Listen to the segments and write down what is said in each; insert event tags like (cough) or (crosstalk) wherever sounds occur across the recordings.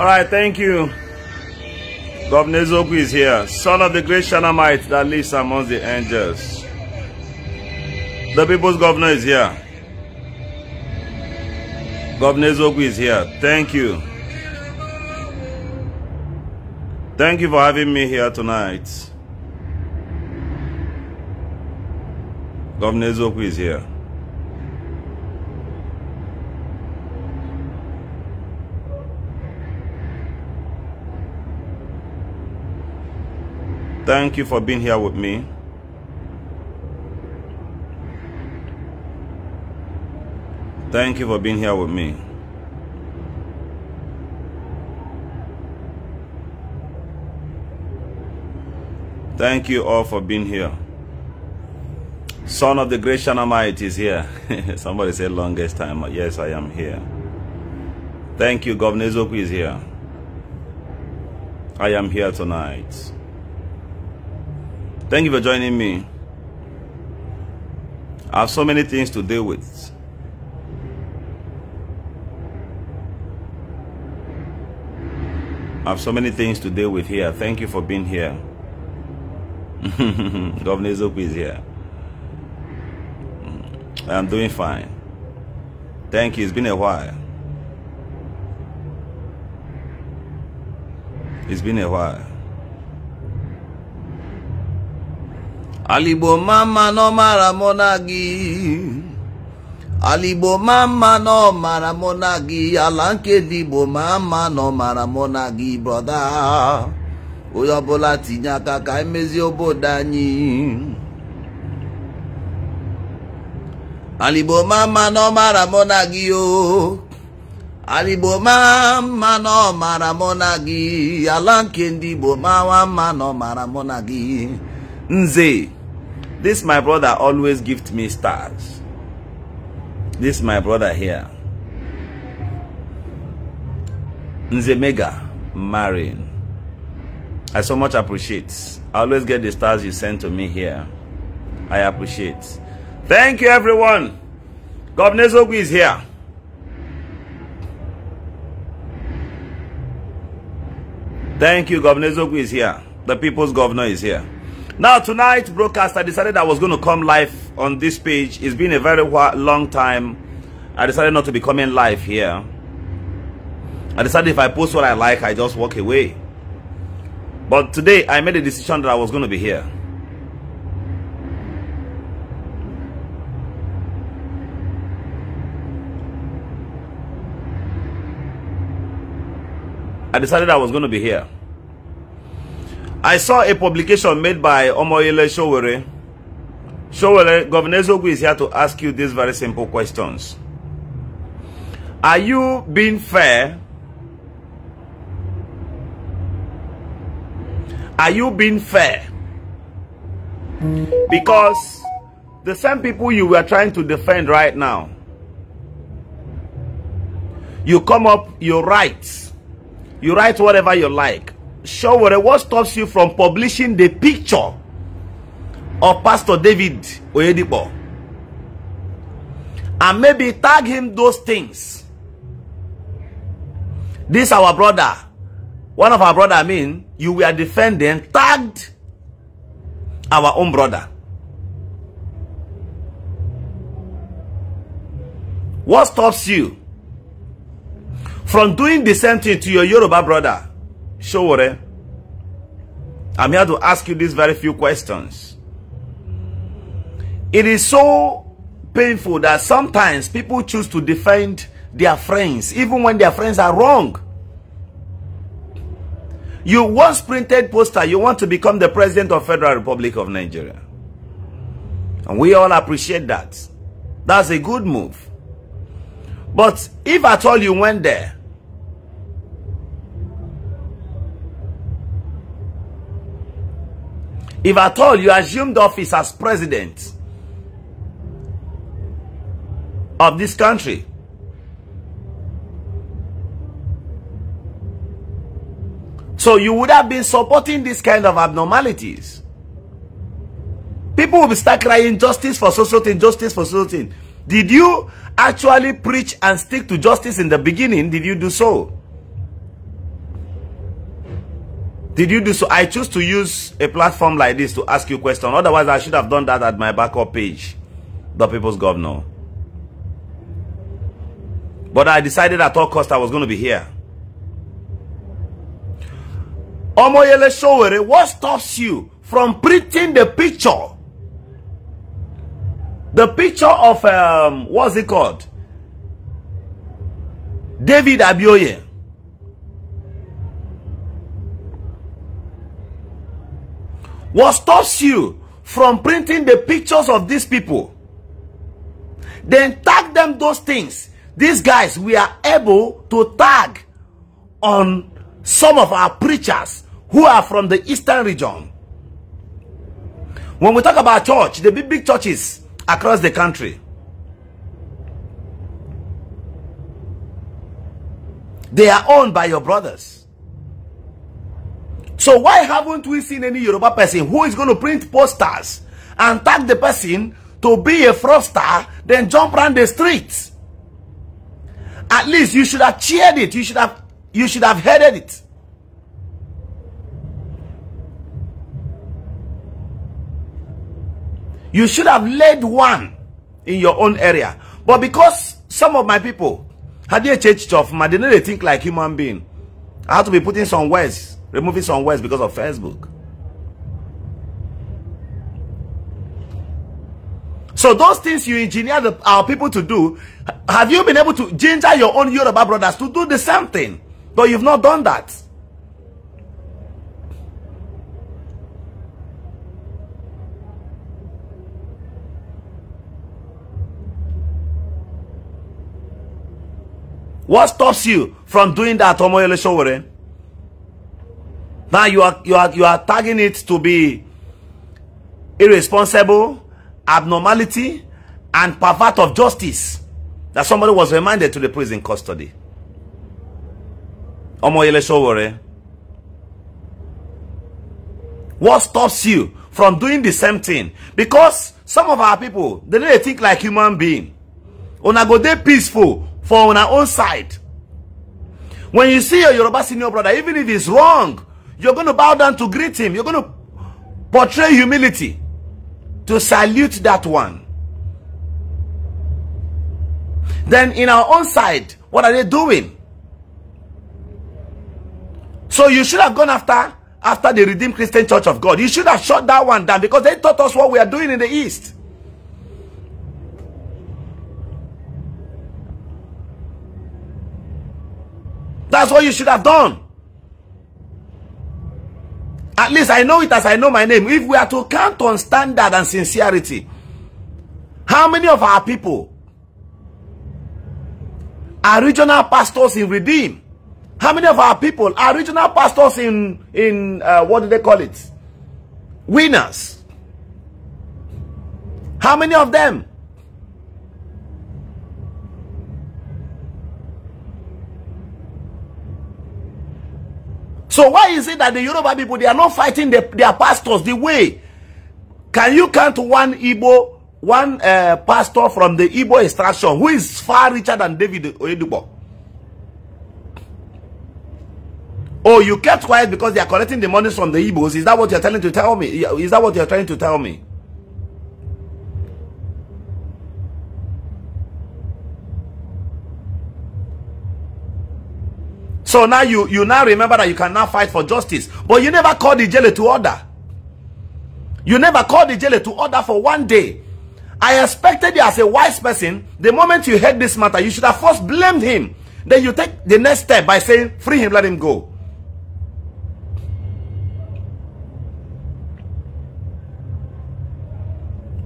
All right, thank you. Governor Zogu is here, son of the great Shanamite that lives amongst the angels. The people's governor is here. Governor Zogu is here. Thank you. Thank you for having me here tonight. Governor Zogu is here. Thank you for being here with me. Thank you for being here with me. Thank you all for being here. Son of the great Shanamite is here. (laughs) Somebody said longest time. Yes, I am here. Thank you. Governor Zoku is here. I am here tonight. Thank you for joining me. I have so many things to deal with. I have so many things to deal with here. Thank you for being here. (laughs) Governor Zoku is here. Mm, I'm doing fine. Thank you. It's been a while. It's been a while. Aligbo mama no mara mụ na mama no mara mụ na gị ala nke digbo mama no mara mụ na gị brọda tinya kaka tinye aka emezi obodo anyị Aligbo mama no mara mụ na gị o Aligbo mama no mara mụ na ala nke ndị Igbo mawa mma no mara mụ Nze, this my brother always gift me stars. This my brother here. Nze Mega, Marin. I so much appreciate. I always get the stars you send to me here. I appreciate. Thank you, everyone. Governor Zogu is here. Thank you, Governor Zogu is here. The people's governor is here. Now, tonight's broadcast, I decided I was going to come live on this page. It's been a very long time. I decided not to be coming live here. I decided if I post what I like, I just walk away. But today, I made a decision that I was going to be here. I decided I was going to be here. I saw a publication made by Omoyele Showere. Showere, Governor Zogu is here to ask you these very simple questions. Are you being fair? Are you being fair? Because the same people you were trying to defend right now, you come up, you write. You write whatever you like. Showore, what stops you from publishing the picture of Pastor David Oyedipo? And maybe tag him those things. This our brother. One of our brother, I mean, you were defending, tagged our own brother. What stops you from doing the same thing to your Yoruba brother? Showore, I'm here to ask you these very few questions. It is so painful that sometimes people choose to defend their friends, even when their friends are wrong. You once printed poster, you want to become the president of Federal Republic of Nigeria. And we all appreciate that. That's a good move. But if at all you went there, If at all you assumed office as president of this country, So you would have been supporting this kind of abnormalities. People will start crying justice for social thing, justice for social thing. Did you actually preach and stick to justice in the beginning? Did you do so? Did you do so? I choose to use a platform like this to ask you a question. Otherwise, I should have done that at my backup page, the People's Governor. But I decided at all cost I was going to be here. Omoyele Showere, what stops you from printing the picture? The picture of, um, what's it called? David Abioye. What stops you from printing the pictures of these people? Then tag them those things. These guys, we are able to tag on some of our preachers who are from the eastern region. When we talk about church, the big, big churches across the country, they are owned by your brothers. So why haven't we seen any Yoruba person who is going to print posters and tag the person to be a fraudster, then jump around the streets? At least you should have cheered it. You should have, you should have headed it. You should have led one in your own area. But because some of my people had their church stuff, they did not think like human being. I have to be putting some words Removing some words because of Facebook. So those things you engineer the, our people to do, have you been able to ginger your own Yoruba brothers to do the same thing? But you've not done that. What stops you from doing that, Omoyele Showere? Now you are you are you are tagging it to be irresponsible, abnormality, and pervert of justice. That somebody was remanded to the prison custody. Omoyele Sowore. What stops you from doing the same thing? Because some of our people, they don't think like human being. Una go dey peaceful for on our own side. When you see your Yoruba senior brother, even if it's wrong, You're going to bow down to greet him. You're going to portray humility to salute that one. Then in our own side, what are they doing? So you should have gone after after the Redeemed Christian Church of God. You should have shut that one down because they taught us what we are doing in the East. That's what you should have done. At least I know it as I know my name. If we are to count on standard and sincerity, how many of our people are regional pastors in Redeem? How many of our people are regional pastors in, in uh, what do they call it? Winners. How many of them So why is it that the Yoruba people, they are not fighting the, their pastors the way? Can you count one Igbo, one uh, pastor from the Igbo extraction who is far richer than David Oyedubo? Oh, you kept quiet because they are collecting the money from the Igbos. Is that what you're trying to tell me? Is that what you're trying to tell me? So now you, you now remember that you can now fight for justice. But you never called the jailer to order. You never called the jailer to order for one day. I expected you as a wise person, the moment you heard this matter, you should have first blamed him. Then you take the next step by saying, free him, let him go.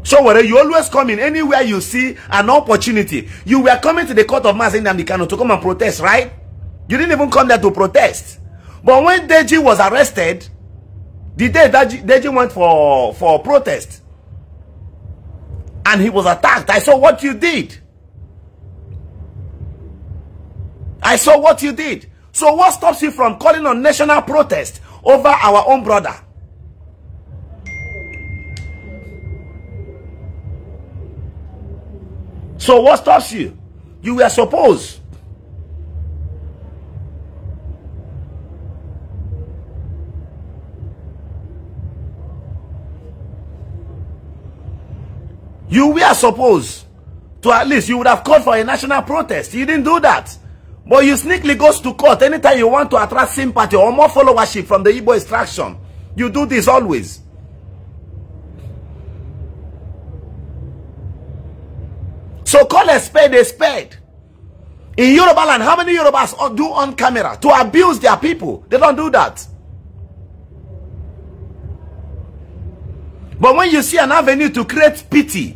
So whether you always come in anywhere you see an opportunity, you were coming to the court of Mazen Namdekano to come and protest, right? You didn't even come there to protest. But when Deji was arrested, the day that Deji went for, for protest, and he was attacked, I saw what you did. I saw what you did. So what stops you from calling on national protest over our own brother? So what stops you? You were supposed You were supposed to at least, you would have called for a national protest. You didn't do that. But you sneakily goes to court anytime you want to attract sympathy or more followership from the Igbo extraction. You do this always. So call a spade a spade. In Yoruba land, how many Yorubas do on camera to abuse their people? They don't do that. But when you see an avenue to create pity,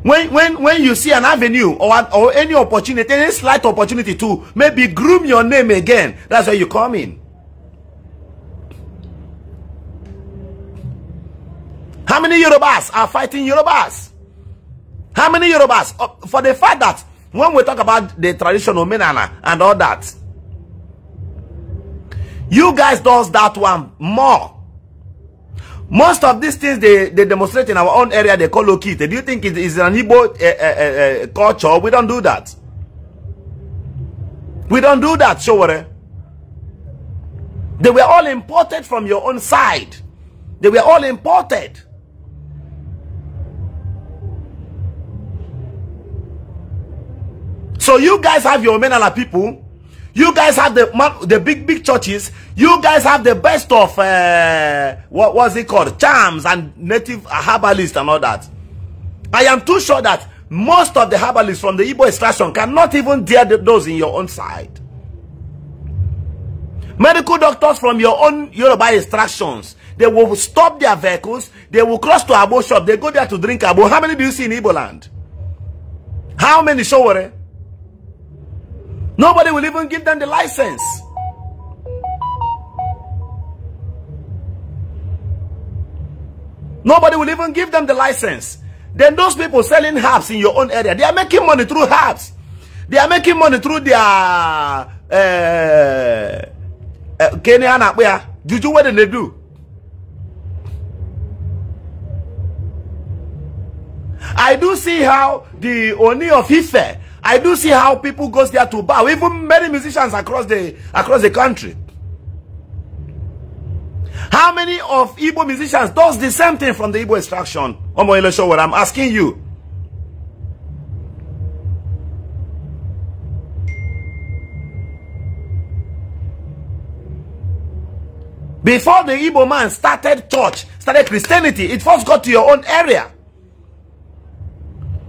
when when when you see an avenue or an, or any opportunity, any slight opportunity to maybe groom your name again, that's where you come in. How many Yorubas are fighting Yorubas? How many Yorubas? Uh, for the fact that when we talk about the traditional Menana and all that, you guys does that one more. Most of these things they, they demonstrate in our own area, they call Okite. Do you think it is an Igbo uh, uh, uh, uh culture? We don't do that. We don't do that, Showore. They were all imported from your own side. They were all imported. So you guys have your Menala people you guys have the the big big churches. You guys have the best of uh, what was it called? Charms and native herbalists and all that. I am too sure that most of the herbalists from the Igbo extraction cannot even dare those in your own side. Medical doctors from your own Yoruba extractions, they will stop their vehicles, they will cross to Abo shop, they go there to drink Abo. How many do you see in Igbo land? How many show Nobody will even give them the license. Nobody will even give them the license. Then those people selling herbs in your own area, they are making money through herbs. They are making money through their uh, uh, Kenya Juju, what did they do? I do see how the Oni of Ife I do see how people goes there to bow. Even many musicians across the across the country. How many of Igbo musicians does the same thing from the Igbo extraction? Omo I'm asking you. Before the Igbo man started church, started Christianity, it first got to your own area.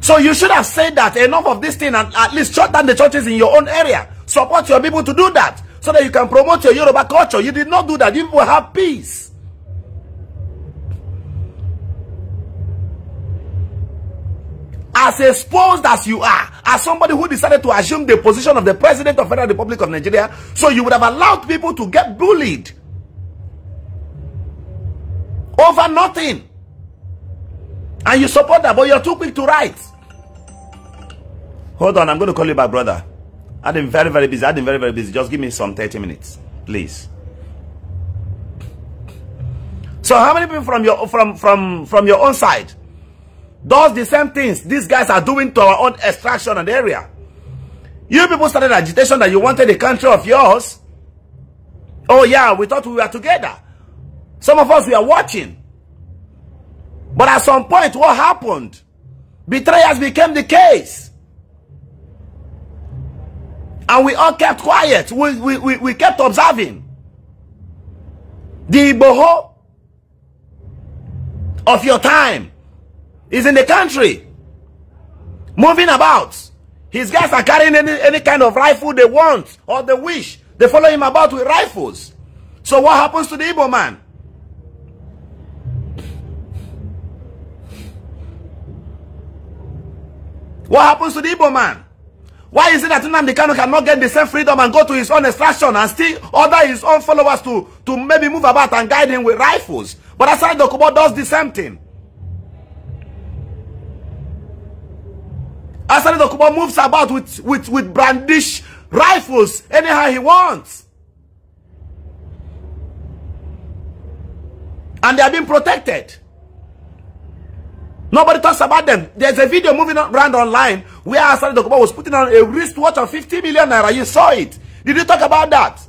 So you should have said that enough of this thing and at least shut down the churches in your own area. Support your people to do that so that you can promote your Yoruba culture. You did not do that. You will have peace. As exposed as you are, as somebody who decided to assume the position of the President of Federal Republic of Nigeria, so you would have allowed people to get bullied over nothing. And you support that, but you're too quick to write. Hold on, I'm going to call you back, brother. I've been very, very busy. I've been very, very busy. Just give me some 30 minutes, please. So how many people from your from from from your own side does the same things these guys are doing to our own extraction and area? You people started agitation that you wanted a country of yours. Oh yeah, we thought we were together. Some of us we are watching. But at some point, what happened? Betrayers became the case. And we all kept quiet. We, we, we, we kept observing. The Igboho of your time is in the country, moving about. His guys are carrying any, any kind of rifle they want or they wish. They follow him about with rifles. So what happens to the Igbo man? What happens to the Igbo man? Why is it that Nnamdi Kanu cannot get the same freedom and go to his own extraction and still order his own followers to, to maybe move about and guide him with rifles? But aside Dokubo does the same thing. Asari Dokubo moves about with, with, with brandish rifles anyhow he wants. And they are being protected. Nobody talks about them. There's a video moving around online where Asari Dokuba was putting on a wristwatch of 50 million naira. You saw it. Did you talk about that?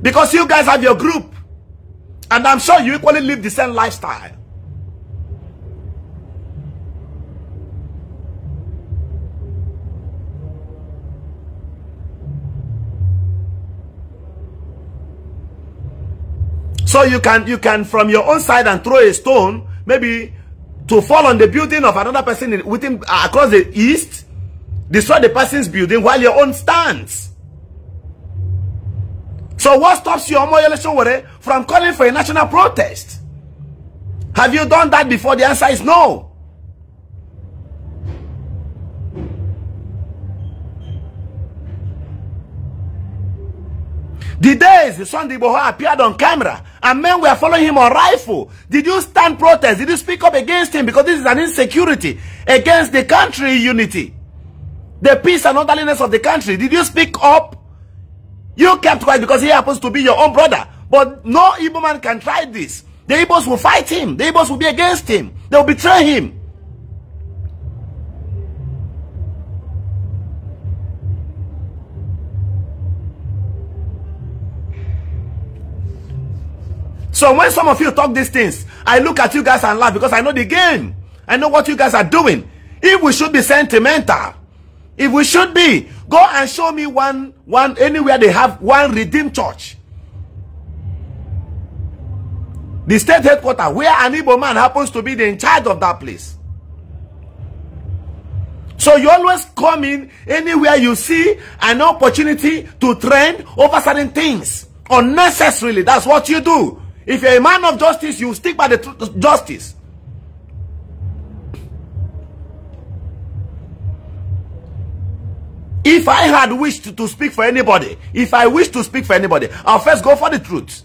Because you guys have your group. And I'm sure you equally live the same lifestyle. So you can, you can from your own side and throw a stone maybe to fall on the building of another person within uh, across the east, destroy the person's building while your own stands. So what stops you, Omo Yeleshowore, from calling for a national protest? Have you done that before? The answer is no. The days Sunday Boho appeared on camera and men were following him on rifle. Did you stand protest? Did you speak up against him? Because this is an insecurity against the country unity. The peace and orderliness of the country. Did you speak up? You kept quiet because he happens to be your own brother. But no Igbo man can try this. The Igbos will fight him. The Igbos will be against him. They will betray him. So when some of you talk these things, I look at you guys and laugh because I know the game. I know what you guys are doing. If we should be sentimental, if we should be, go and show me one, one, anywhere they have one redeemed church. The state headquarters, where an Igbo man happens to be the in charge of that place. So you always come in anywhere you see an opportunity to trend over certain things unnecessarily. That's what you do. If you're a man of justice, you stick by the truth, justice. If I had wished to, speak for anybody, if I wish to speak for anybody, I'll first go for the truth.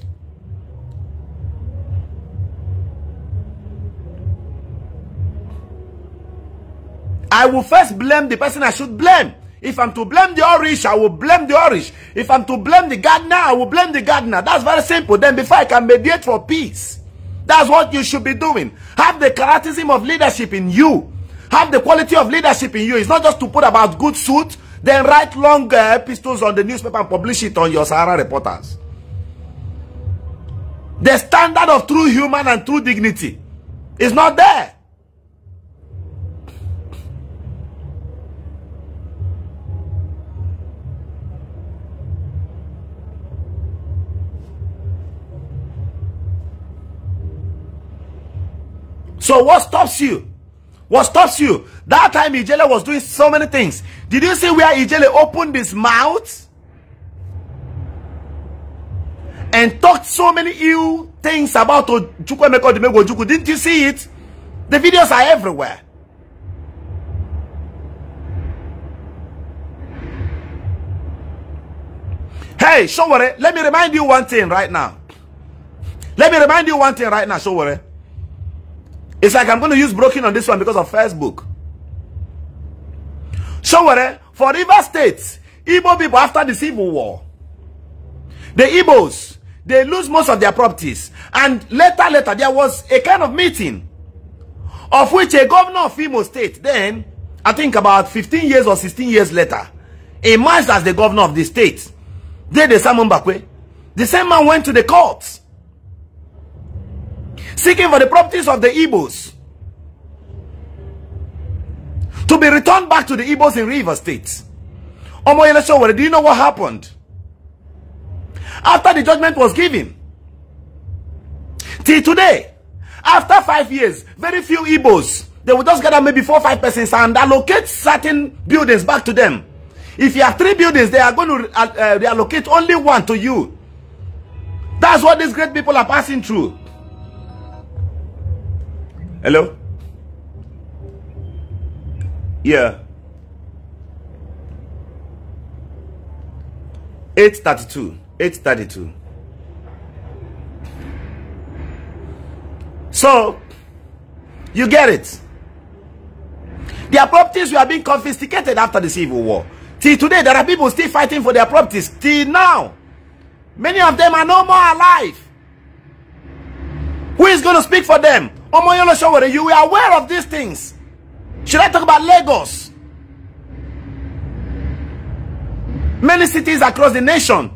I will first blame the person I should blame. If I'm to blame the orish, I will blame the orish. If I'm to blame the gardener, I will blame the gardener. That's very simple. Then before I can mediate for peace, that's what you should be doing. Have the charism of leadership in you. Have the quality of leadership in you. It's not just to put about good suit, then write long uh, epistles on the newspaper and publish it on your Sahara reporters. The standard of true human and true dignity is not there. So what stops you? What stops you? That time Ijele was doing so many things. Did you see where Ijele opened his mouth? And talked so many ill things about Ojukwemeko Dimego Didn't you see it? The videos are everywhere. Hey, Showore, let me remind you one thing right now. Let me remind you one thing right now, Showore. It's like I'm going to use broken on this one because of Facebook. So, for River State, Igbo people after the Civil War, the Igbos, they lose most of their properties. And later, later, there was a kind of meeting of which a governor of Imo State, then, I think about 15 years or 16 years later, emerged as the governor of the state. Then the Simon Bakwe, the same man went to the courts seeking for the properties of the Igbos to be returned back to the Igbos in River State. Omoyele Showere, do you know what happened? After the judgment was given, till today, after five years, very few Igbos, they will just gather maybe four or five persons and allocate certain buildings back to them. If you have three buildings, they are going to uh, uh reallocate only one to you. That's what these great people are passing through. Hello? Yeah. 832. 832. So, you get it. Their properties were being confiscated after the Civil War. Till today, there are people still fighting for their properties. Till now, many of them are no more alive. Who is going to speak for them? you were aware of these things. Should I talk about Lagos? Many cities across the nation.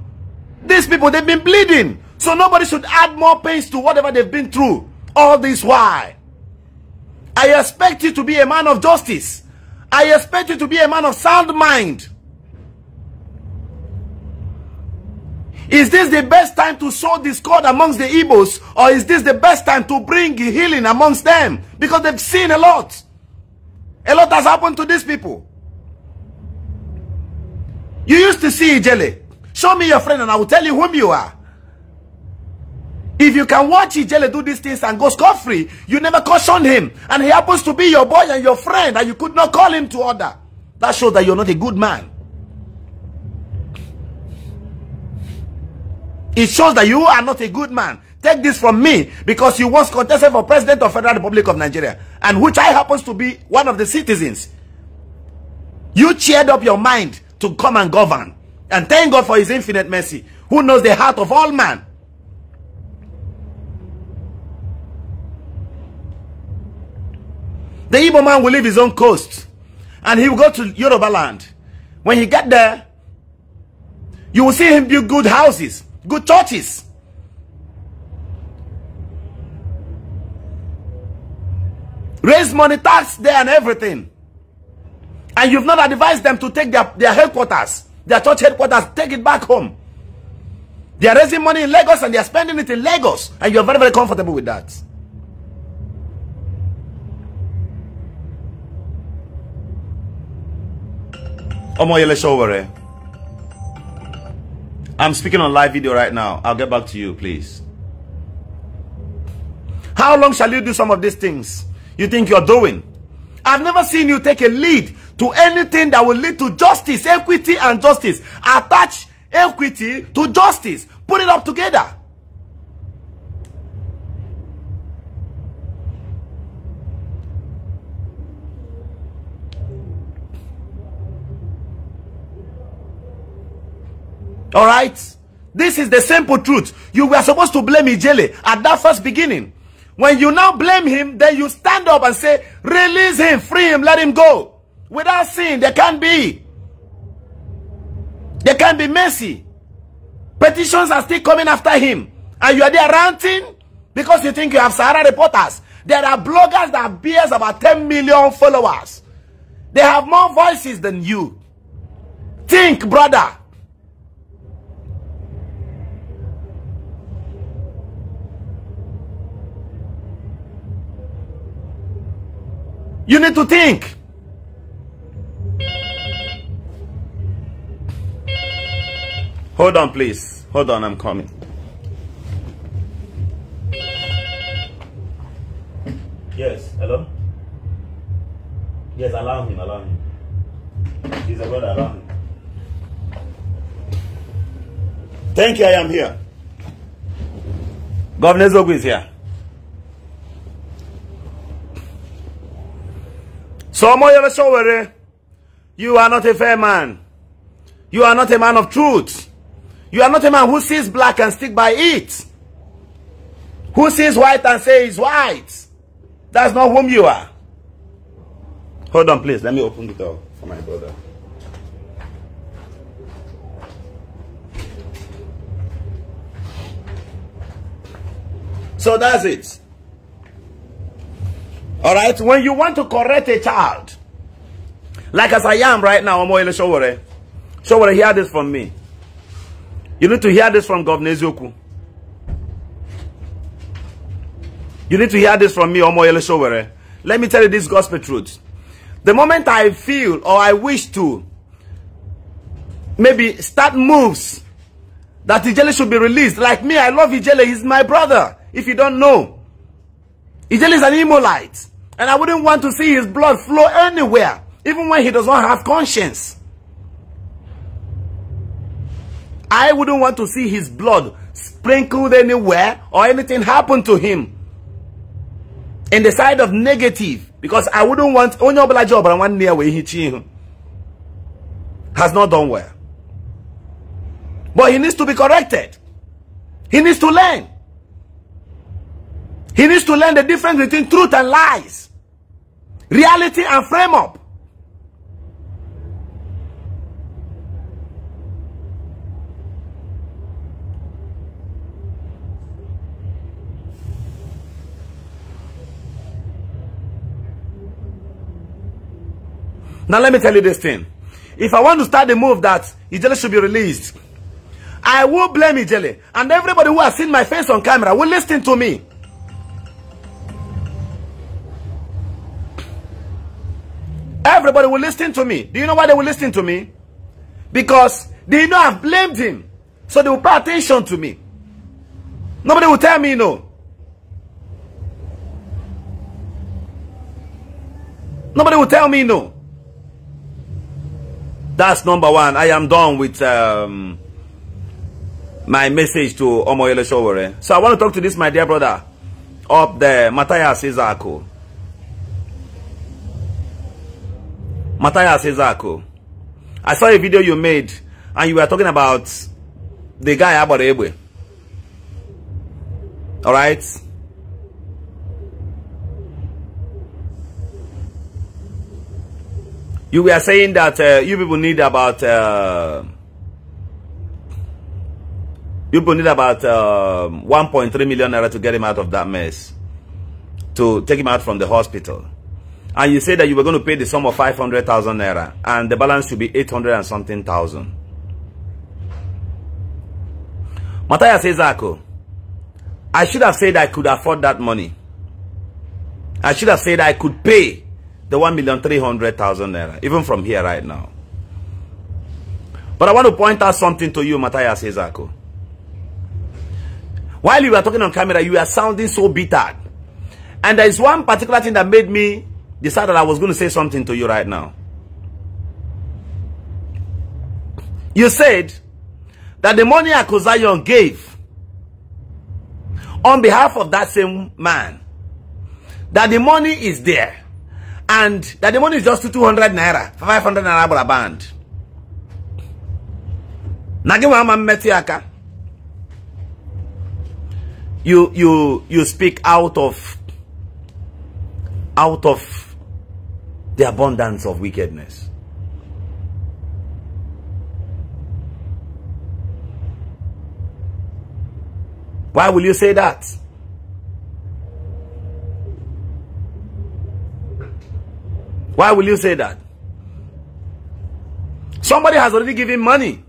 These people, they've been bleeding. So nobody should add more pains to whatever they've been through. All this why. I expect you to be a man of justice. I expect you to be a man of sound mind. Is this the best time to sow discord amongst the Igbos? Or is this the best time to bring healing amongst them? Because they've seen a lot. A lot has happened to these people. You used to see Ijele. Show me your friend and I will tell you whom you are. If you can watch Ijele do these things and go scot-free, you never cautioned him. And he happens to be your boy and your friend and you could not call him to order. That shows that you're not a good man. It shows that you are not a good man. Take this from me because you once contested for president of Federal Republic of Nigeria and which I happens to be one of the citizens. You cheered up your mind to come and govern. And thank God for his infinite mercy who knows the heart of all man. The Igbo man will leave his own coast and he will go to Yoruba land. When he get there, you will see him build good houses good churches. Raise money tax there and everything. And you've not advised them to take their, their headquarters, their church headquarters, take it back home. They are raising money in Lagos and they are spending it in Lagos. And you're very, very comfortable with that. Omo Yele Showere. I'm speaking on live video right now. I'll get back to you, please. How long shall you do some of these things you think you're doing? I've never seen you take a lead to anything that will lead to justice, equity, and justice. Attach equity to justice. Put it up together. All right? This is the simple truth. You were supposed to blame Ijele at that first beginning. When you now blame him, then you stand up and say, release him, free him, let him go. Without sin, there can't be. There can't be mercy. Petitions are still coming after him. And you are there ranting because you think you have Sahara reporters. There are bloggers that bears about 10 million followers. They have more voices than you. Think, brother. You need to think. Hold on, please. Hold on, I'm coming. Yes, hello? Yes, alarm him, Alarm him. He's a brother, alarm him. Thank you, I am here. Governor Zogu is here. So Moyo Sowore, you are not a fair man. You are not a man of truth. You are not a man who sees black and stick by it. Who sees white and say is white. That's not whom you are. Hold on, please. Let me open the door for my brother. So that's it. All right, when you want to correct a child, like as I am right now, Omoyele Showore, Showore, hear this from me. You need to hear this from Governor Zoku. You need to hear this from me, Omoyele Showere. Let me tell you this gospel truth. The moment I feel or I wish to maybe start moves that Ijele should be released. Like me, I love Ijele. He's my brother, if you don't know. Ijele is an Imolite. And I wouldn't want to see his blood flow anywhere, even when he does not have conscience. I wouldn't want to see his blood sprinkled anywhere or anything happen to him. In the side of negative, because I wouldn't want only black job I want near way he has not done well. But he needs to be corrected. He needs to learn. He needs to learn the difference between truth and lies. reality and frame up. Now let me tell you this thing. If I want to start the move that Ijele should be released, I will blame Ijele. And everybody who has seen my face on camera will listen to me. Everybody will listen to me. Do you know why they will listen to me? Because they know I've blamed him. So they will pay attention to me. Nobody will tell me no. Nobody will tell me no. That's number one. I am done with um, my message to Omoyele Showore. So I want to talk to this, my dear brother, up there, Matthias Izako. Matthias Ezako. I saw a video you made and you were talking about the guy about Ebwe. Alright? You were saying that uh, you people need about uh, you people need about uh, um, 1.3 million naira to get him out of that mess, to take him out from the hospital and you said that you were going to pay the sum of 500,000 naira and the balance should be 800 and something thousand. Matthias Ezako, I should have said I could afford that money. I should have said I could pay the 1,300,000 naira, even from here right now. But I want to point out something to you, Matthias Ezako. While you were talking on camera, you were sounding so bitter. And there is one particular thing that made me decided I was going to say something to you right now. You said that the money Akozayon gave on behalf of that same man, that the money is there and that the money is just 200 naira, 500 naira for a band. You, you, you speak out of, out of the abundance of wickedness. Why will you say that? Why will you say that? Somebody has already given money.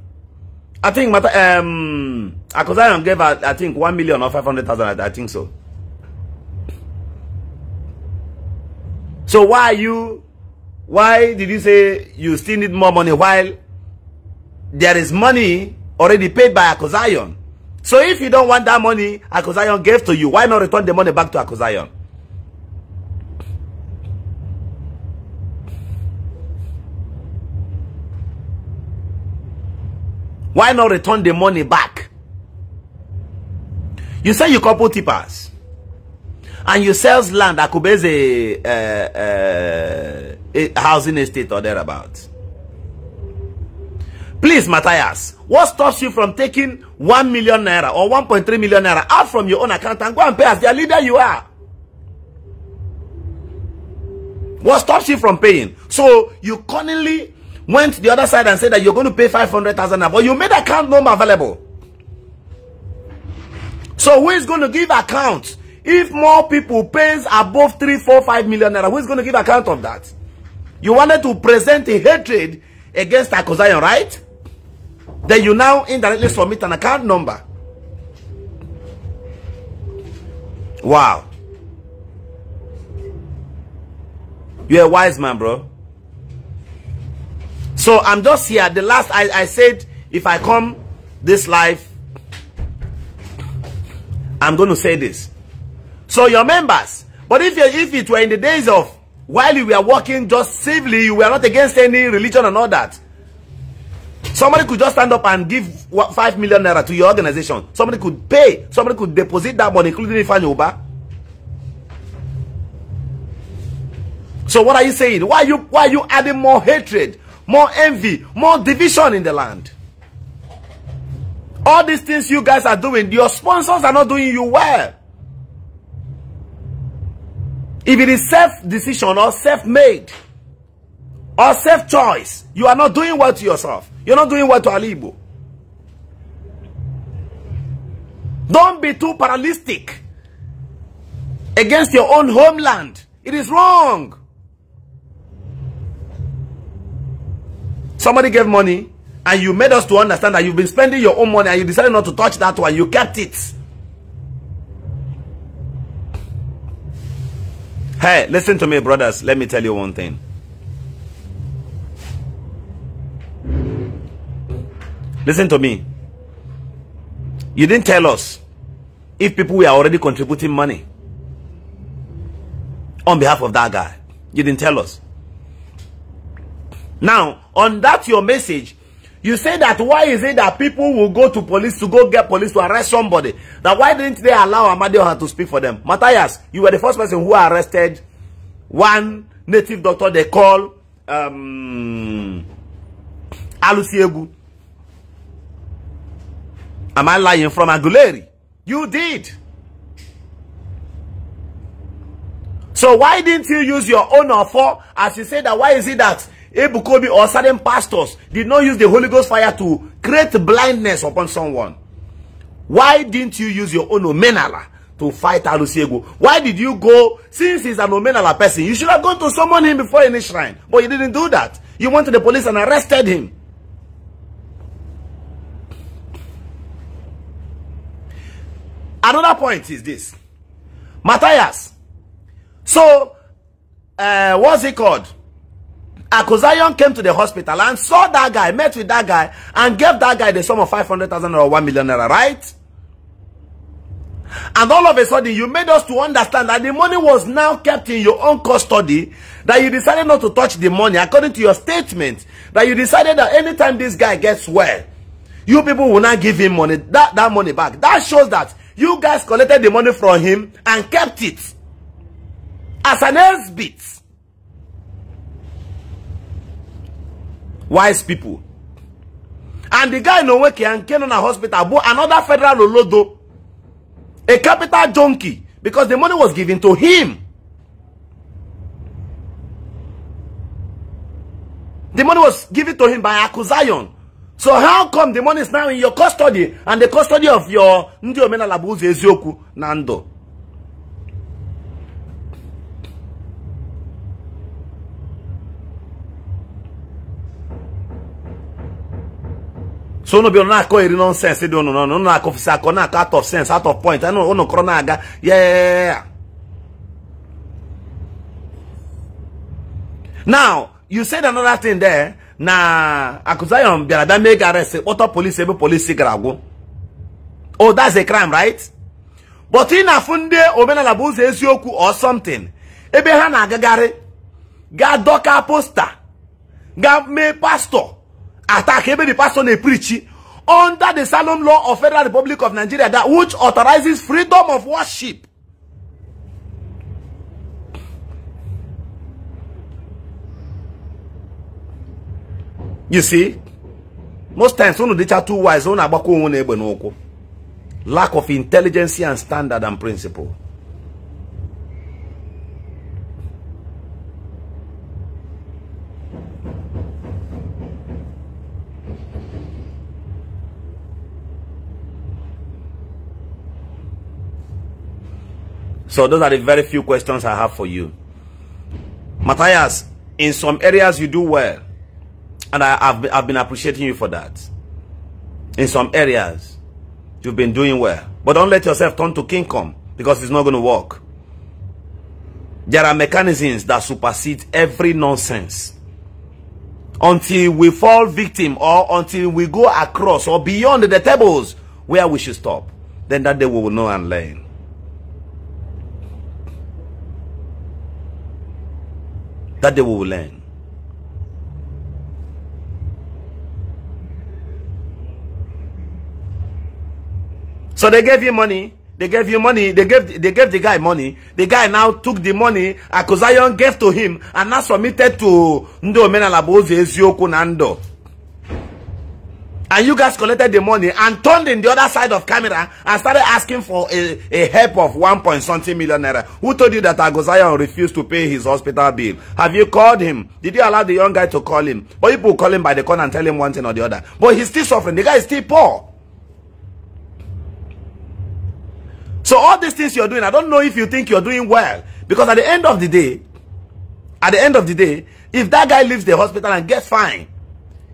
I think um, Akosayan gave, I, think, 1 million or 500,000. I, I think so. So why are you why did you say you still need more money while there is money already paid by Akozion? So if you don't want that money Akozion gave to you, why not return the money back to Akozion? Why not return the money back? You say you couple tippers. And you sells land. Akubeze uh, uh, Eh, housing estate or thereabouts. Please, Matthias, what stops you from taking 1 million naira or 1.3 million naira out from your own account and go and pay as the leader you are? What stops you from paying? So you cunningly went the other side and said that you're going to pay 500,000 naira, but you made account number available. So who is going to give account if more people pays above 3, 4, 5 million naira? Who is going to give account of that? You wanted to present a hatred against Akosayan, right? Then you now indirectly submit an account number. Wow. You're a wise man, bro. So I'm just here. The last I, I said, if I come this life, I'm going to say this. So your members, but if, if it were in the days of while you were walking just safely, you were not against any religion and all that. Somebody could just stand up and give what, 5 million naira to your organization. Somebody could pay. Somebody could deposit that money, including Ifan Yoba. So what are you saying? Why are you, why are you adding more hatred, more envy, more division in the land? All these things you guys are doing, your sponsors are not doing you well. If it is self-decision or self-made or self-choice, you are not doing well to yourself. You're not doing well to Alibo. Don't be too paralytic against your own homeland. It is wrong. Somebody gave money and you made us to understand that you've been spending your own money and you decided not to touch that one. You kept it. Hey, listen to me, brothers. Let me tell you one thing. Listen to me. You didn't tell us if people were already contributing money on behalf of that guy. You didn't tell us. Now, on that your message, You say that why is it that people will go to police to go get police to arrest somebody? That why didn't they allow Amadioha to speak for them? Matthias, you were the first person who arrested one native doctor they call um, Alusiegu. Am I lying from Aguleri? You did. So why didn't you use your own offer as you say that why is it that Ebukobi or certain pastors did not use the Holy Ghost fire to create blindness upon someone. Why didn't you use your own omenala to fight Alusiego? Why did you go, since he's an omenala person, you should have gone to summon him before any shrine. But you didn't do that. You went to the police and arrested him. Another point is this. Matthias. So, uh, what's he called? Akosayon came to the hospital and saw that guy, met with that guy, and gave that guy the sum of 500,000 or 1 million naira, right? And all of a sudden, you made us to understand that the money was now kept in your own custody, that you decided not to touch the money, according to your statement, that you decided that anytime this guy gets well, you people will not give him money, that, that money back. That shows that you guys collected the money from him and kept it as an S-bit. wise people. And the guy in Oweke and a Hospital bought another federal Olodo, a capital junkie, because the money was given to him. The money was given to him by Akuzayon. So how come the money is now in your custody and the custody of your Ndi Omenalabuzi Ezioku Nando? so unu bịa na-akọ eri nọnsensị dị ụnụ n'ọnụ unu akọfụsị akọ na-akọ out of sense out of point unu kọrọ na-aga yeah now you said another thing there na Akuzayon bịara bịa mee arrest kpọtọ polisi ebe polisi gara agwụ oh that's a crime right but ị na-afụ ndị omenala bụ ụzọ eziokwu or something ebe ha na-agagharị ga adọka posta ga mee pastọ attack every person they preach under the solemn law of Federal Republic of Nigeria that which authorizes freedom of worship. You see, most times when of the two wise, one about lack of intelligence and standard and principle. So those are the very few questions I have for you. Matthias, in some areas you do well. And I, have I've been appreciating you for that. In some areas, you've been doing well. But don't let yourself turn to kingdom because it's not going to work. There are mechanisms that supersede every nonsense. Until we fall victim or until we go across or beyond the tables where we should stop, then that day we will know and learn. That they will learn. So they gave you money. They gave you money. They gave they gave the guy money. The guy now took the money Akuzayon gave to him and now submitted to Ndo Menalabozi Ezioku Nando and you guys collected the money and turned in the other side of camera and started asking for a, a help of one point something million naira. Who told you that Agozayan refused to pay his hospital bill? Have you called him? Did you allow the young guy to call him? Or people call him by the corner and tell him one thing or the other. But he's still suffering. The guy is still poor. So all these things you're doing, I don't know if you think you're doing well. Because at the end of the day, at the end of the day, if that guy leaves the hospital and gets fine,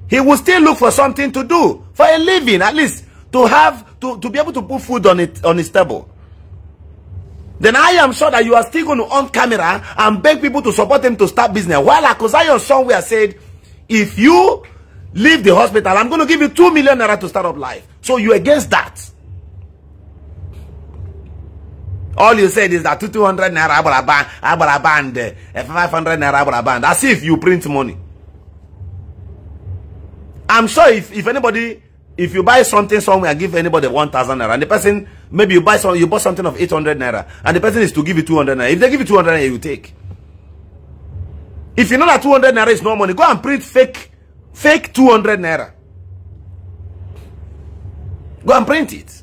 he will still look for something to do for a living, at least to have to, to be able to put food on it on his table. Then I am sure that you are still going to on camera and beg people to support him to start business. While Akosayo somewhere said, if you leave the hospital, I'm going to give you two million naira to start up life. So you against that. All you said is that 200 naira abalaband, eh, 500 naira abalaband, as if you print money. I'm sure if, if anybody, if you buy something somewhere and give anybody 1,000 naira, and the person, maybe you buy some, you bought something of 800 naira, and the person is to give you 200 naira. If they give you 200 naira, you take. If you know that 200 naira is no money, go and print fake, fake 200 naira. Go and print it.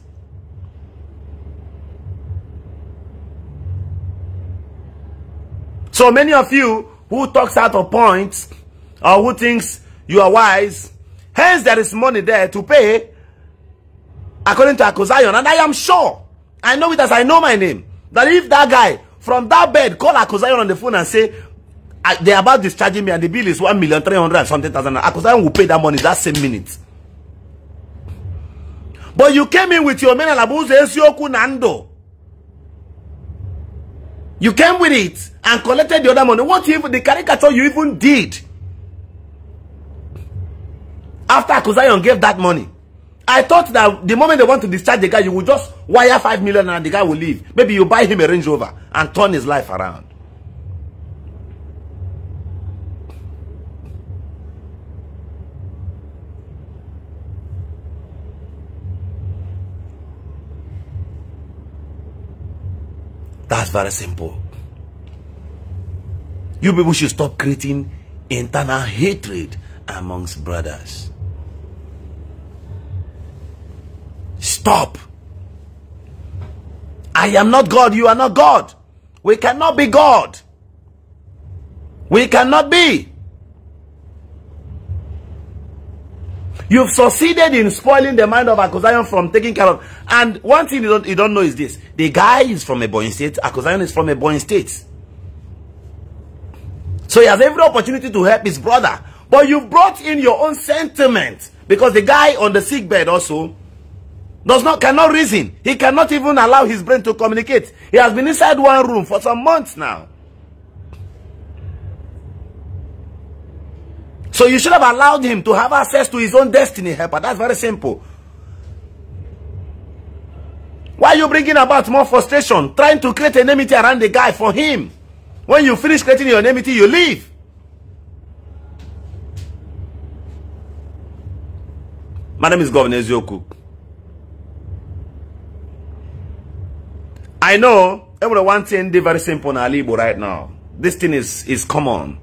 So many of you who talks out of points or who thinks you are wise Hence, there is money there to pay, according to Akosayon. And I am sure, I know it as I know my name, that if that guy from that bed call Akosayon on the phone and say, they're about discharging me and the bill is 1 million 300 and something thousand, Akosayon will pay that money that same minute. But you came in with your men and Esioku Nando. You came with it and collected the other money. What even the caricature you even did? after Akuzayon gave that money. I thought that the moment they want to discharge the guy, you will just wire 5 million and the guy will leave. Maybe you buy him a Range Rover and turn his life around. That's very simple. You people should stop creating internal hatred amongst brothers. Stop. I am not God. You are not God. We cannot be God. We cannot be. You've succeeded in spoiling the mind of Akosayan from taking care of. And one thing you don't, you don't know is this. The guy is from a boy state. Akosayan is from a boy state. So he has every opportunity to help his brother. But you brought in your own sentiment. Because the guy on the sick bed also does not cannot reason. He cannot even allow his brain to communicate. He has been inside one room for some months now. So you should have allowed him to have access to his own destiny helper. That's very simple. Why are you bringing about more frustration? Trying to create enmity around the guy for him. When you finish creating your enmity, you leave. My name is Governor Ezioku. I know everyone one thing they very simple in Alibo right now. This thing is is common.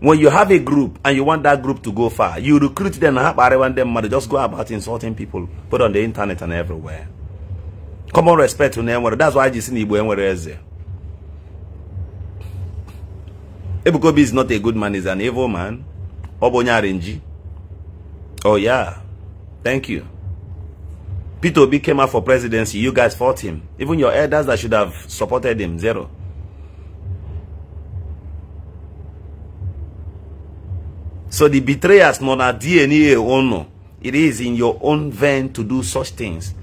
When you have a group and you want that group to go far, you recruit them and have everyone them money. Just go about insulting people, put on the internet and everywhere. Common respect to them. That's why you see the anywhere else. Ebukobi is not a good man, he's an evil man. Oh yeah. Thank you. Peter Obi came out for presidency. You guys fought him. Even your elders that should have supported him, zero. So the betrayers, not a DNA owner, It is in your own vein to do such things.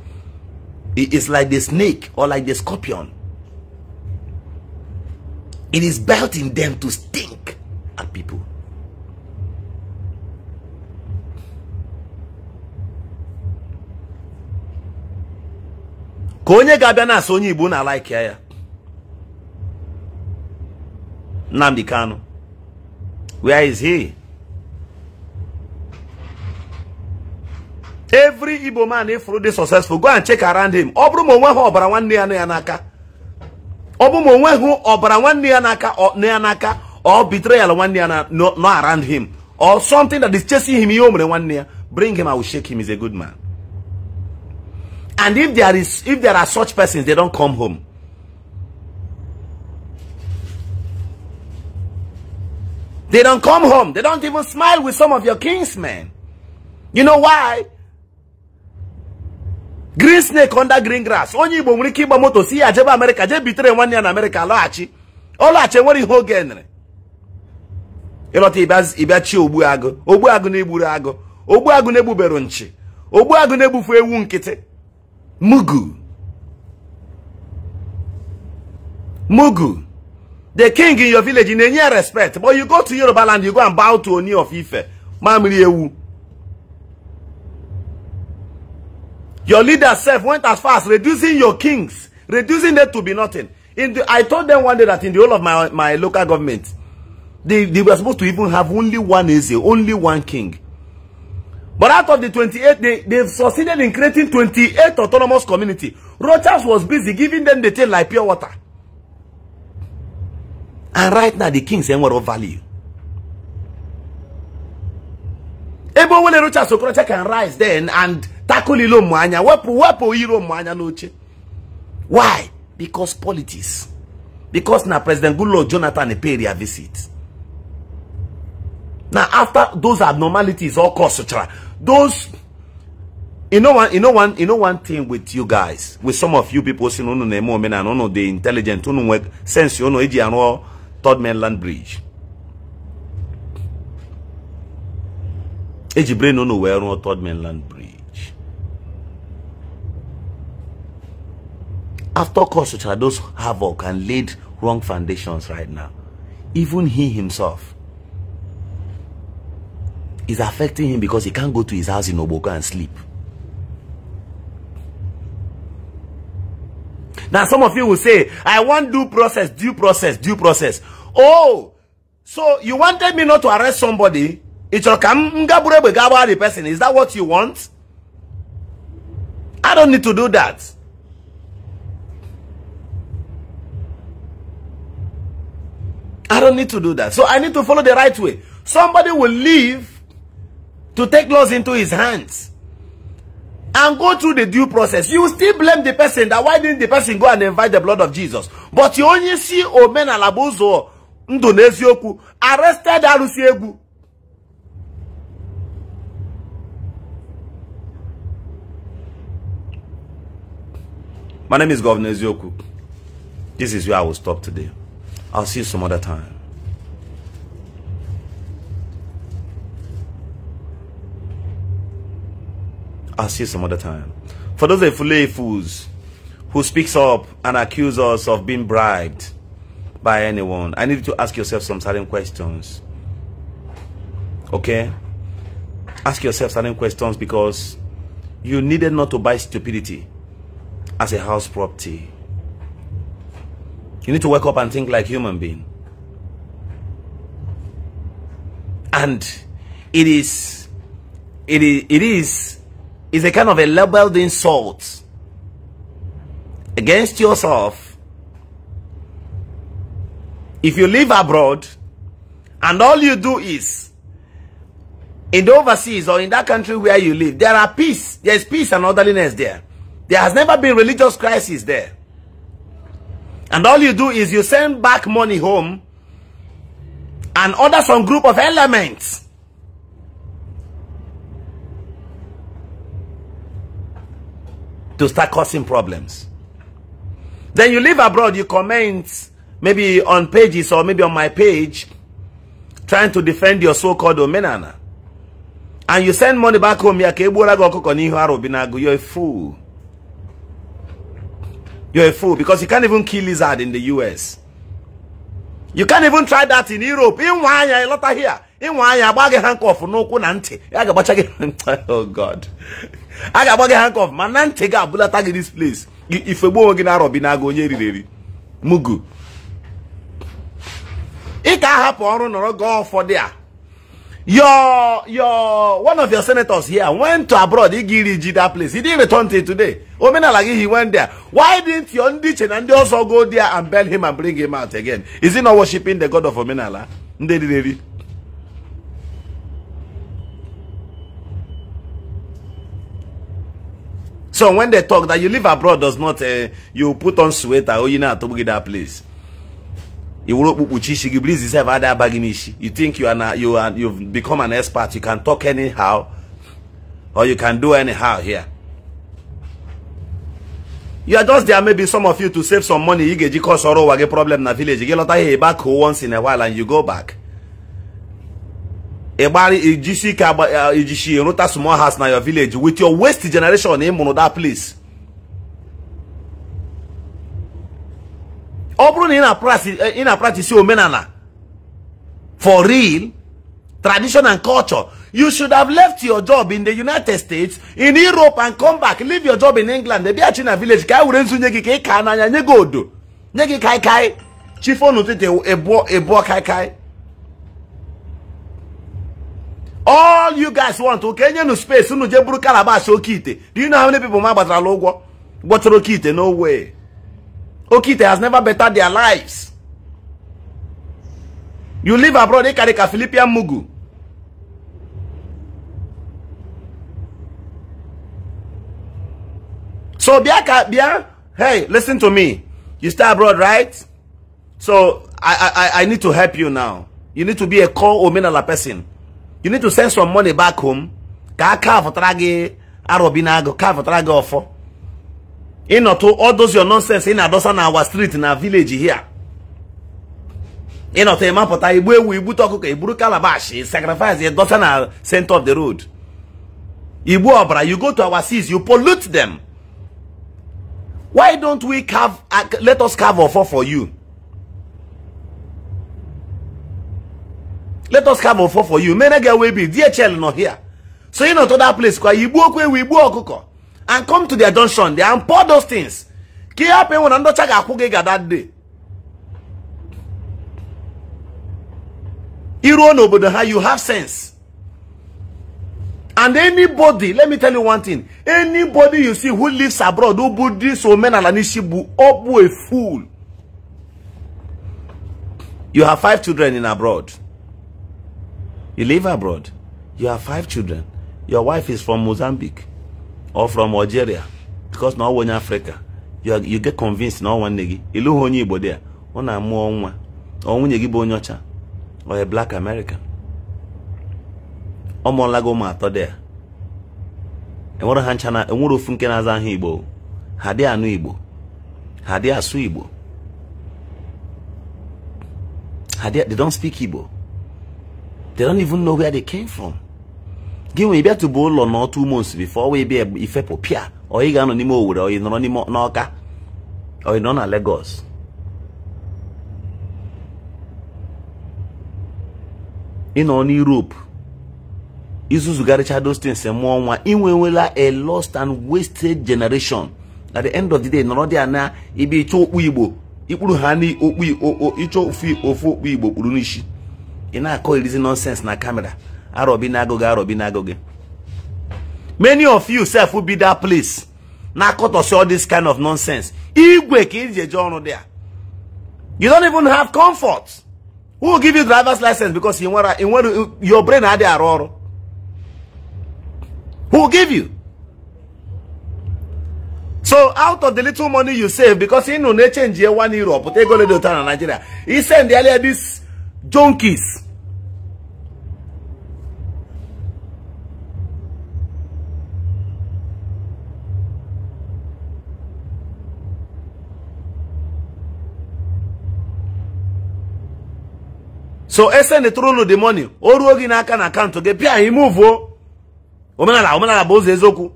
It is like the snake or like the scorpion. It is built in them to stink at people. ka onye ga-abịa na-asị onye Igbo na alaiki ya Nnamdi Kanu where is he every Igbo man ifuru dị successful go and check around him ọ bụrụ ma ha ọbara nwanne ya n'aka ọ bụrụ ma onweghị ọbara nwanne ya n'aka or betrayal nwanne ya no around him or something that is chasing him ihe o mere nwanne ya bring him I will shake him is a good man And if there is, if there are such persons, they don't come home. They don't come home. They don't even smile with some of your kinsmen. You know why? Green snake under green grass. Only Igbo nwere kiba ịgba moto si ya jebe Amerika jee bitere nwanne ya na achi lọghachi. Ọ lọghachi nwere ihe oge enere. Ịlọta ịbịachi ogbu agụ. Ogbu ne na na-egburu agụ. Ogbu agu ewu Mugu. Mugu. The king in your village, in any respect. But you go to Yoruba land, you go and bow to Oni of Ife. Mamri Ewu. Your leader self went as far as reducing your kings, reducing them to be nothing. In the, I told them one day that in the whole of my, my local government, they, they were supposed to even have only one Eze, only one king. But out of the 28, they, they've succeeded in creating 28 autonomous community. Rogers was busy giving them the thing like pure water. And right now, the king's saying what of value. Ebo wele Rogers Okorocha can rise then and tackle ilo mwanya. Wepo, wepo ilo mwanya noche. Why? Because politics. Because now President Goodluck Jonathan pay their visit. Now after those abnormalities all cause. Those, you know one, you know one, you know one thing with you guys, with some of you people saying, no, no, no, no, no, no, the intelligent, no, no, sense, you know, AG and all, third mainland bridge. AG brain, no, no, where, no, third mainland bridge. After course, which are those havoc and laid wrong foundations right now, even he himself is affecting him because he can't go to his house in Oboka and sleep. Now some of you will say, I want due process, due process, due process. Oh, so you wanted me not to arrest somebody? It's the person. Is that what you want? I don't need to do that. I don't need to do that. So I need to follow the right way. Somebody will leave to take laws into his hands and go through the due process. You still blame the person that why didn't the person go and invite the blood of Jesus? But you only see Omen Alabozo Ndonezioku arrested Alusiegu. My name is Governor Ezioku. This is where I will stop today. I'll see you some other time. I'll see you some other time. For those Efule fools who speaks up and accuse us of being bribed by anyone, I need to ask yourself some certain questions. Okay? Ask yourself certain questions because you needed not to buy stupidity as a house property. You need to wake up and think like human being. And it is, it is, it is is a kind of a labeled insult against yourself. If you live abroad and all you do is in the overseas or in that country where you live, there are peace. There is peace and orderliness there. There has never been religious crisis there. And all you do is you send back money home and order some group of elements to start causing problems. Then you live abroad, you comment maybe on pages or maybe on my page trying to defend your so-called omenana. And you send money back home, you're a fool. You're a fool because you can't even kill lizard in the US. You can't even try that in Europe. In Wanya, a lot here. In Wanya, bag a handcuff, no kunante. (laughs) Oh God. a ga-agba gị handcuff ma na ntị gị abụlata gị dis place ifegbu onwe gị na-arọbi na onye eriri eri mugu ị ka ahapụ ọrụ nọrọ gọọ ụfọdụ a your your one of your senators here went to abroad igi iri ji that place he didn't return till today omenala gị he went there why didn't your ndị iche na ndị ọzọ go there and bel him and bring him out again is he not worshiping the god of omenala ndị riri eri So when they talk that you live abroad does not, uh, you put on sweater, oh, you know, to that place. You think you are not, you are you've become an expert. You can talk anyhow, or you can do anyhow here. You are just there, maybe some of you to save some money. You get you cause sorrow, a problem in the village. You get lot of back once in a while and you go back. ijisi ike ijisi rụta small house na your village with your waste generation ị mụrụ that place ọ bụrụ na ị na-practice eh, omenala for real tradition and culture you should have left your job in the united states in europe and come back leave your job in england bịaghachi na village ka anyị e were nzu nye gị ka ị e ka n'anya nye gị odo nye gị kaikai chifonu ebu ebuo kaikai all you guys want to Kenya nu space unu je buru calabash oke do you know how many people ma gbatarala What gbọtara oke no way Okite has never bettered their lives you live abroad they carry a Philipian mugu so bịa ka bịa hey listen to me you stay abroad right so I, I, I need to help you now you need to be a core omenala person you need to send some money back home ka aka afụtara gị arọbi na agụ ka afụtara gị ọfọ ịnọtụ all those your nonsense ị na-adọsa na awa street na village here ịnọtụ ịmapụta igbu ewu igbute ọkụkọ iburu calabash sacrifice ịdọsa na center of the road igbu ọbara you go to our seas you pollute them why don't we carve uh, let us carve ọfọ for you let us have offer for you May many get away be dhl not here so you know to that place kwa igbu okwu We igbu ọkụkọ and come to their junction They and pour those things ka ihe hapụ enwe na ndọcha ga-akwụ gị ga that day iruo n'obodo ha you have sense and anybody let me tell you one thing anybody you see who lives abroad who bụ dis omenala n'isi bụ up, bụ a fool you have five children in abroad You live abroad. You have five children. Your wife is from Mozambique or from Algeria because na onye Africa. You, are, you get convinced na nwanne gị ịlụghị onye Igbo dị ya ọ na-amụọ nwa ọ nwunye gị bụ onye ọcha or a black American ọ mụọla gị ụmụ atọ there ya enwere ha ncha na enwere ofu nke na-aza aha Igbo ha dị anụ Igbo ha dị asụ Igbo ha they don't speak Igbo they don't even know where they came from gị nwere ịbịa tụba ụlọ na two months before ọwa ịbịa ifepụ pịa ọ ị ga-anọ n'ime Owerri ọ ị nọrọ n'ime n'Ọka ọ ị nọ na Lagos ị nọ n'Europe izuzugharịcha those things mụọ nwa ị nwewela a lost and wasted generation at the end of the day nọrọ dị ana ịbịa ịchọ okpu Igbo ikpuru ha n'okpu ịchọ ofu okpu Igbo kpuru n'isi ị na-akọ irizi nonsense na kamera arọbi na-agụ gị arọbi na-agụ many of you self will be that place na-akọtọsi all this kind of nonsense igwe ka iji eje ọrụ dị a you don't even have comfort who will give you driver's license because ị nwere ị nwere your brain adịghị arụ ọrụ who will give you so out of the little money you save because ị nụ na-echenji one euro pụta ego ledo taa na Nigeria i send earlier this junkies so esenetụrụ ụlọ the money o ruo gị n'aka na pia gị pịa o omenala omenala bụ ụzọ eziokwu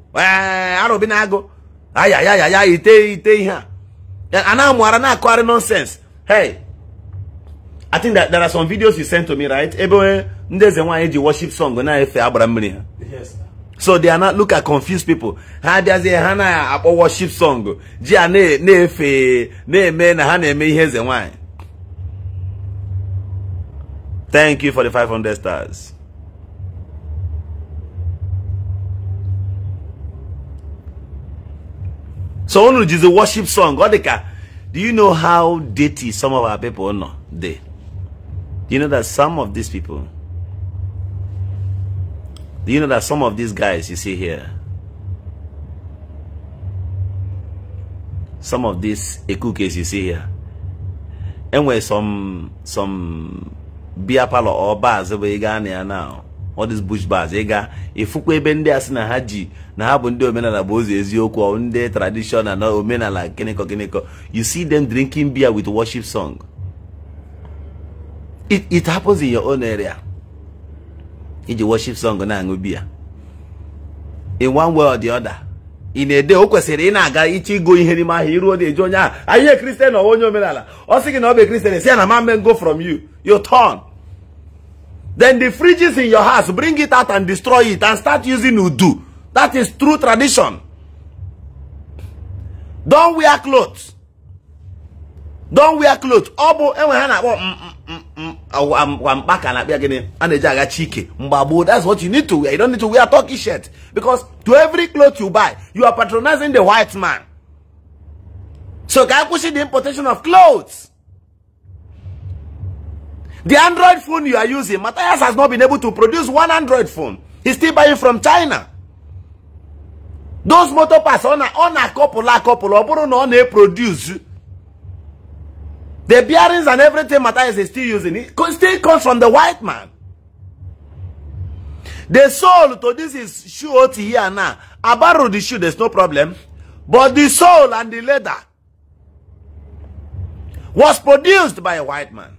arụbi na agụ ayayayaya ite ite ihe a a na-amụara na-akụgharị nọnsens hey I think that there are some videos you sent to me, right? Everywhere, there's a one worship song. Yes. So they are not look at confused people. Ha there's a hana a worship song. Jia ne ne fe ne me na hana me here's a Thank you for the 500 stars. So only is a worship song. Do you know how dirty some of our people No, They. Do you know that some of these people, do you know that some of these guys you see here, some of these cookies you see here, Anyway, some some beer parlor or bars over Ghana now, all these bush bars, ega, you ebe ndị asị na ha ji na ha bụ ndị omenala bụ ụzọ eziokwu ndị tradishonal na omenala gịnịkọ gịnịkọ, you see them drinking beer with worship song. It, it happens in your own area. Iji worship song na-aṅụ biya. In one way or the other. in a day, o kwesịrị ina aga iche go ihe n'ime ahia iru na-eji onye ahụ ahịa christian or onye omenala or seeking to na ọ bụ kristian si ya na go from you you turn then the fridges in your house bring it out and destroy it and start using udu that is true tradition Don wear clothes Don't wear clothes. ọ bụ enwe ha na-akpọ mm, mm, mm, wampaka na-akpịa gịnị a na-eji agachi ike mgbagbo that's what you need to wear you don't need to wear turkish shirt because to every cloth you buy you are patronizing the white man so can I push the importation of clothes the android phone you are using Matthias has not been able to produce one android phone he's still buying from china those motor parts a na a couple, a couple, na-eproduce the bearings and everything Matthias is still using, it still comes from the white man. The soul to this is shoe out here now. I borrow the shoe, there's no problem. But the soul and the leather was produced by a white man.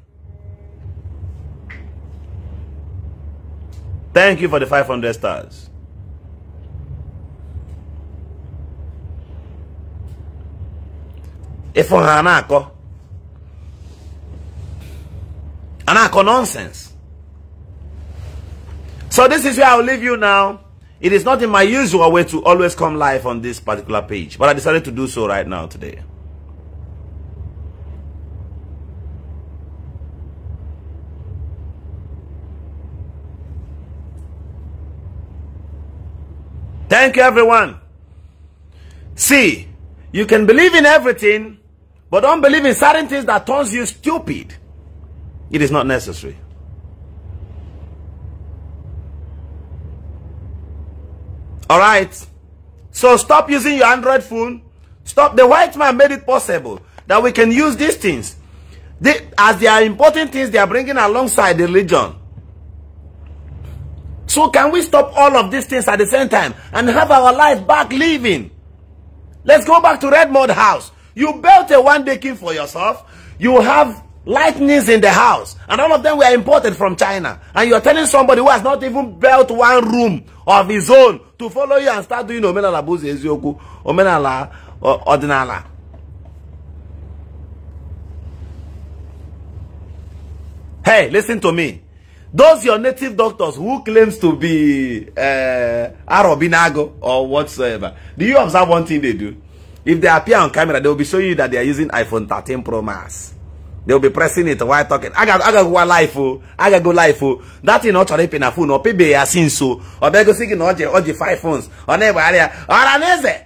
Thank you for the 500 stars. If on And I call nonsense. So this is where I'll leave you now. It is not in my usual way to always come live on this particular page. But I decided to do so right now today. Thank you, everyone. See, you can believe in everything, but don't believe in certain things that turns you stupid. It is not necessary. All right. So stop using your Android phone. Stop. The white man made it possible that we can use these things. They, as they are important things they are bringing alongside the religion. So can we stop all of these things at the same time and have our life back living? Let's go back to Redmond House. You built a one-day king for yourself. You have lightnings in the house and all of them were imported from china and you're telling somebody who has not even built one room of his own to follow you and start doing omenala bụzi eziokwu omenala ọdịnala hey listen to me those your native doctors who claims to be uh, eh, arobinago or whatsoever do you observe one thing they do if they appear on camera they will be showing you that they are using iphone 13 pro max They'll be pressing it while talking. I got I got go life oh. I got go life oh. That in not chore pay na phone or pay be asin so. Or be go seeking no the, or the five phones. Or never area. Oraneze.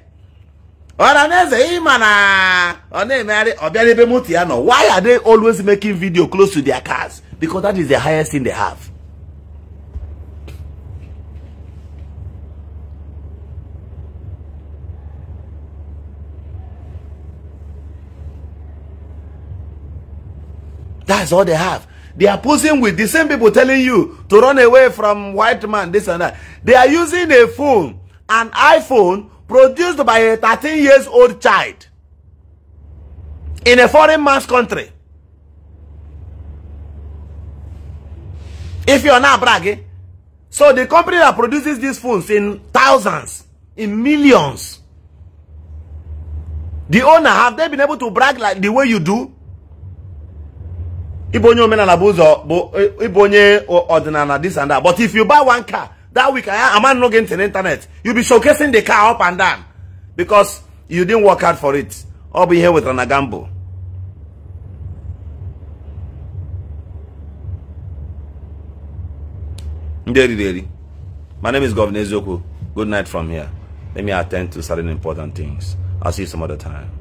Oraneze imana. Ah. Or never area. Or be ebe muti ano. Why are they always making video close to their cars? Because that is the highest thing they have. That's all they have. They are posing with the same people telling you to run away from white man, this and that. They are using a phone, an iPhone, produced by a 13 years old child in a foreign man's country. If you're not bragging, so the company that produces these phones in thousands, in millions, the owner, have they been able to brag like the way you do? Ibonye onye omenala bụ ụzọ bụ this and that but if you buy one car that week I am not getting internet you be showcasing the car up and down because you didn't work hard for it I'll be here with gamble ndị daily. my name is Governor Eziokwu good night from here let me attend to certain important things I'll see you some other time